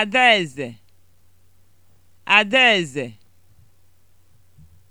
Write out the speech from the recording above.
Adaeze Adaeze